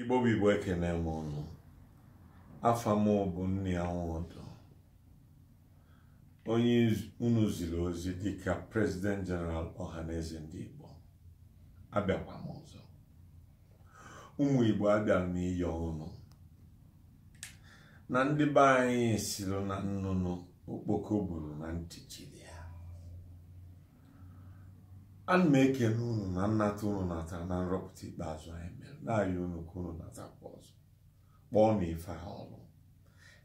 igbo bụ igbo ekene m ụnụ afa m bụ nni ọdụ onye unu ziri ozi dịka prezident jeneral ọhaneze ndị igbo abịakwa m ọzọ ụmụ igbo abịara n'iyi ọnụ na ndị be anyị siri na nnụnụ okpoko buru na ntị jiri ana m ekene unu na nnata unu nata na nrọpụta ikpeazụ anyị mere na-arịọ unu ka unu natakwa ọzọ kpọọ na ife ha ọrụ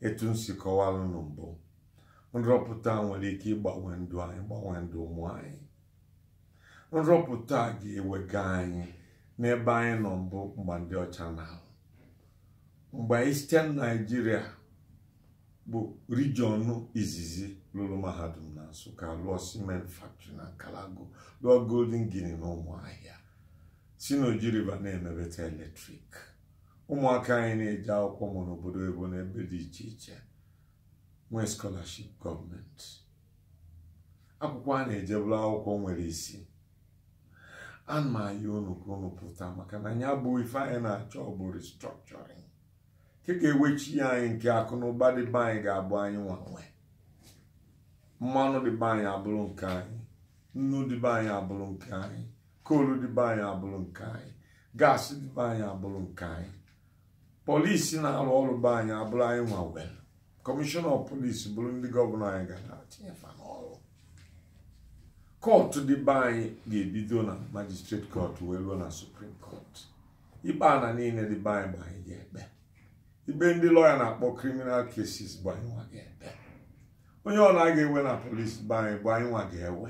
etu m si kọwara unu mbụ nrọpụta nwere ike ịgbanwe ndụ anyị gbanwee ndụ ụmụ anyị nrọpụta ga-ewega anyị n'ebe anyị nọ mbụ mgbe ndị ọcha na-ahụ mgbe anyị site na naijiria bụ rijiọnụ izizi lụrụ mahadum na nsụka lụọ cement factory na kalago lụọ golden guinea na ụmụahịa si n'oji river na-emebeta eletrik ụmụaka anyị na-eje akwụkwọ mụ n'obodo ebo n'ebe dị iche iche nwee scholarship gọọmenti akwụkwọ a na-ejebụla akwụkwọ nwere isi a ma ya unu ka unu pụta maka na ya bụ ife anyị na-achọ bụ restructuring ka ewechi anyị nke akụ na ụba dị be anyị ga-abụ anyị nwanwe mmanụ dị be anyị abụrụ nke anyị nnu be anyị abụrụ nke anyị koolu dị be anyị abụrụ nke anyị gaasị be anyị abụrụ nke anyị polisi na-arụ ọrụ be anyị abụrụ anyị nwanwel kọmishọna polisi bụrụ ndị gọvanọ anyị ga na-atinye fa n'ọrụ kọtụ dịbe anyị ga-ebido na majistreti kọtụ wee ruo na suprim kọtụ ikpe na niile dị be anyị bụ anyị ga-ekpe ibe ndị lọya na-akpọ kriminal cases bụ anyị nwa ga ebe onye ọ na-aga ewe na polisi bụ anyị bụ anyị nwa ga-ewe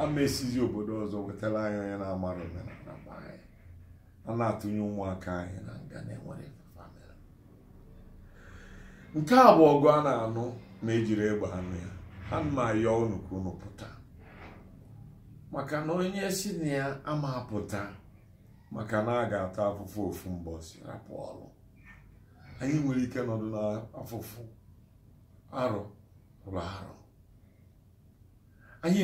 ama esizi obodo ọzọ wetara anyị onye na-amara omenala bụ anyị a na-atụnye ụmụaka anyị na nga na-enwere nke a bụ ọgụ a na-anụ ma ejiri egbe anụ ya ana ma ya unu ka pụta maka na onye si na ya ama pụta maka na a ga-ata afụfụ ofu mbọsi rapụ ọrụ anyị nwere ike nọdụ n'afụfụ arọ rụrụ arụ anyị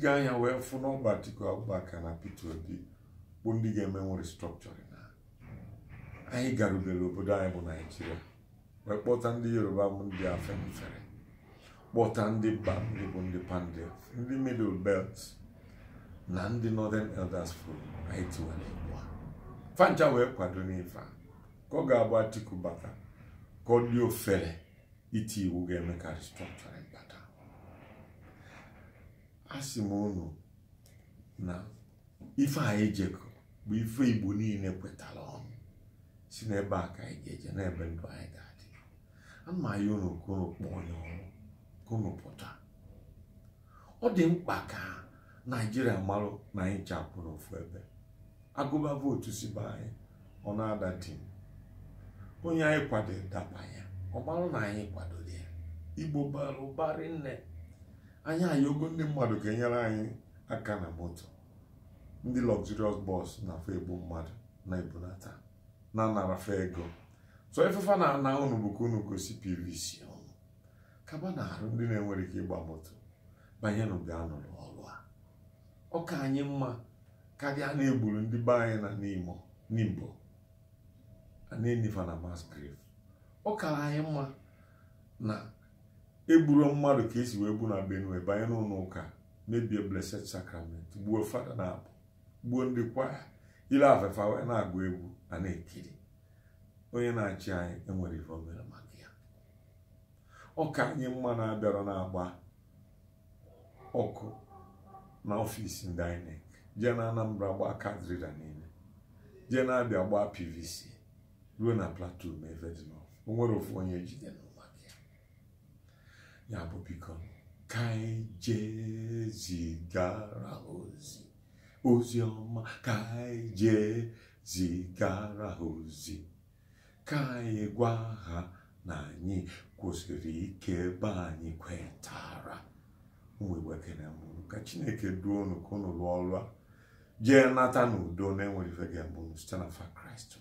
gị anya wee fụ n'ọgba Atiku Abubakar na Peter Obi bụ ndị ga-eme nwere restructuring na anyị garubere obodo anyị bụ Naijiria wee kpọta ndị Yoruba bụ ndị afemfere kpọta ndị ndị bụ ndị Pandya ndị Middle Belt na ndị Northern Elders fụrụ anyị tiwara ugbu a fancha wee kwado n'ife a ka ọ ga-agba Atiku bata ka ọ dị ofere iti iwu ga-eme ka restructuring bata a sị m unu na ife anyị e jekọ bụ ife Igbo niile kwetara ọnụ si n'ebe a ka anyị ga-eje n'ebe ndụ anyị ga-adị ya unu ka unu kpọọ onye ọrụ ka pụta ọ dị mkpa ka naijiria marụ na anyị chapụrụ ofu ebe agụba vootu si be anyị ọ na-ada dị onye anyị kwadoro dakpa ya na anyị kwadoro ya igbo bara ụbarị nne anyị anyị ogo ndị mmadụ ga-enyere anyị aka na moto ndị luxurious bọs na-afọ egbu mmadụ na ebulata na narafa ego so efefa na ana ụnụ bụ unu gosi pvc ọnụ kaba na-arụ ndị na-enwere ike ịgba moto banyenụ ga-anọrọ ọrụ a ọka anyị mma karịa na-egburu ndị be anyị na n'imo n'Igbo na-eniva na mass grave ọ kara anyị mma na egburu mmadụ ka esi wee bụ na benue banye n'ụlọ ụka mebie blessed sacrament gbuo fada na abụ gbuo ndị kwaya ile afefa wee na-agụ egwu na na-ekiri onye na-achị anyị enwere ife omere maka ya ọka anyị mma na-abịara na-agba ọkụ na ọfisi ndị INEC jee na Anambra gbaa kadrida niile jee na-abịa gbaa PVC ruo na plateau ma efe dị n'ọfụ ofu onye jide n'ụwa gị ya bụ biko ka anyị jezigara ozi ozi ọma ka anyị jezigara ozi ka anyị gwa ha na anyị kwụsịrị ike ebe anyị kwetara ụmụ mụrụ ka chineke duo unu ka ọrụ a jee nata n'udo na-enweghị ife site na fa kraịst